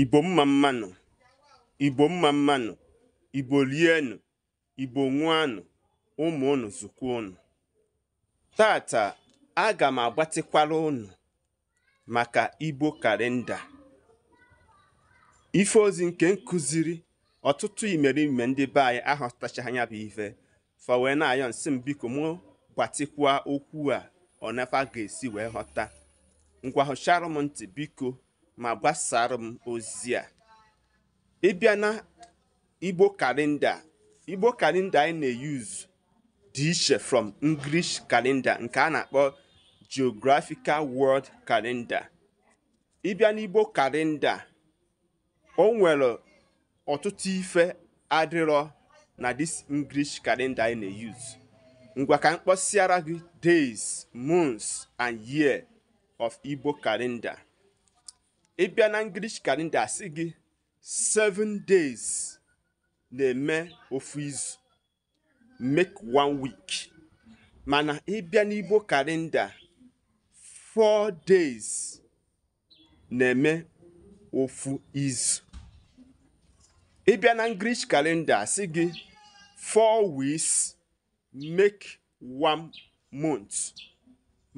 igbo mma mmanụ igbo mma mmanụ igbo rienụ igbo ṅụanụ ụmụ unu zukwa unu tata aga m agbatịkwara unu maka igbo kalenda ife ozi nke nkụziri ọtụtụ imerime ndị be anyị ahọtachaghị anya bụ ife fa na-ayọ nsị m biko mụ gbatịkwa okwu a ọ nafa ga-esi wee ghọta ngwa hụcharụ m ntị biko ma gbasara m ozi a ịbịa na igbo kalenda igbo kalenda anyị na eyuz dị iche from english kalenda nke a na-akpọ geographical world kalenda ịbịa igbo kalenda o nwere ọtụtụ ife adịrọ na this english kalenda anyị na eyuz ngwa ka m kpọsịara gị days months and year of igbo kalenda ị bịa na ngilish kalenda asị gị seven days na-eme ofu izu make one week mana ịbịa n'igbo kalenda four days na-eme ofu izu ịbịa na ngilish kalenda asị gị four weeks make one month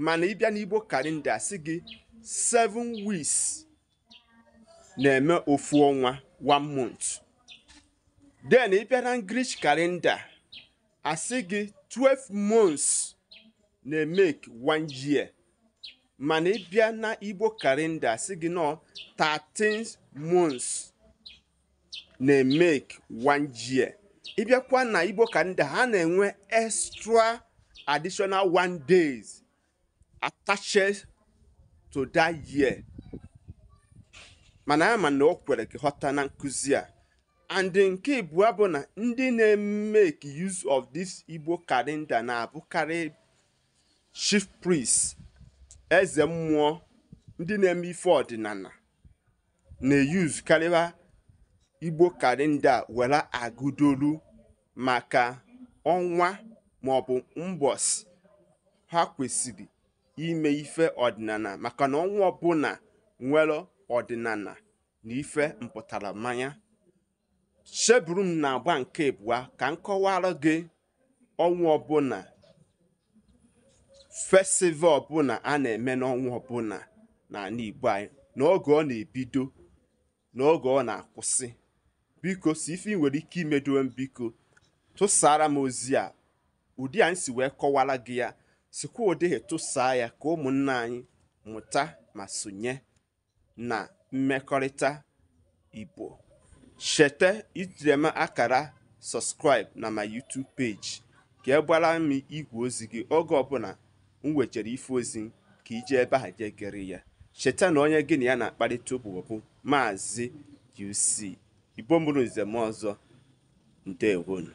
mana ịbịa n'igbo kalenda asị gị seven weeks na-eme ofu ọnwa one month then ị bịa na English kalenda asị gị 12 months na-emeke one year mana ị bịa na Igbo kalenda asị gị nọ 13 months na-emeke one year ị bịakwa na Igbo kalenda ha na-enwe extra additional one days attached to that year mana ama na o kwere ghọta na nkụzi a and nke abụọ bụ na ndị na-emeke use of this igbo kalenda na-abụkarị chief priest eze mmụọ ndị na-eme ife ọdịnala na-eyuz karịa igbo kalenda were agụdolu maka ọnwa maọbụ mbọs ha kwesịrị ime ife ọdịnala maka na ọnwa ọbụla nwere ọdịnala na ife mpụtara mmanya cheburu m na-agba nke abụọ ka m kọwara gị ọnwa ọbụla festival ọbụla a na-eme n'ọnwa ọbụla na Igbo anyị n'oge ọ na-ebido n'oge ọ na-akwụsị biko si ife nwere ike imedowe m biko tụsara m ozi a ụdị anyị si wee kọwara gị ya sikwa ụdịghị tụsaa ya ka ụmụnna anyị mụta ma sonye na mmekọrịta Igbo, cheta itinye m akara sọskraịb na my YouTube page ka e gwara m igwe ozi gị oge ọbụla m nwechara ife ozi ka iji ebe aha je ya cheta na onye gị na ya na-akparịta ụbụbọ maazi Maazị UC Igbo mụrụ nze m ọzọ ndewonu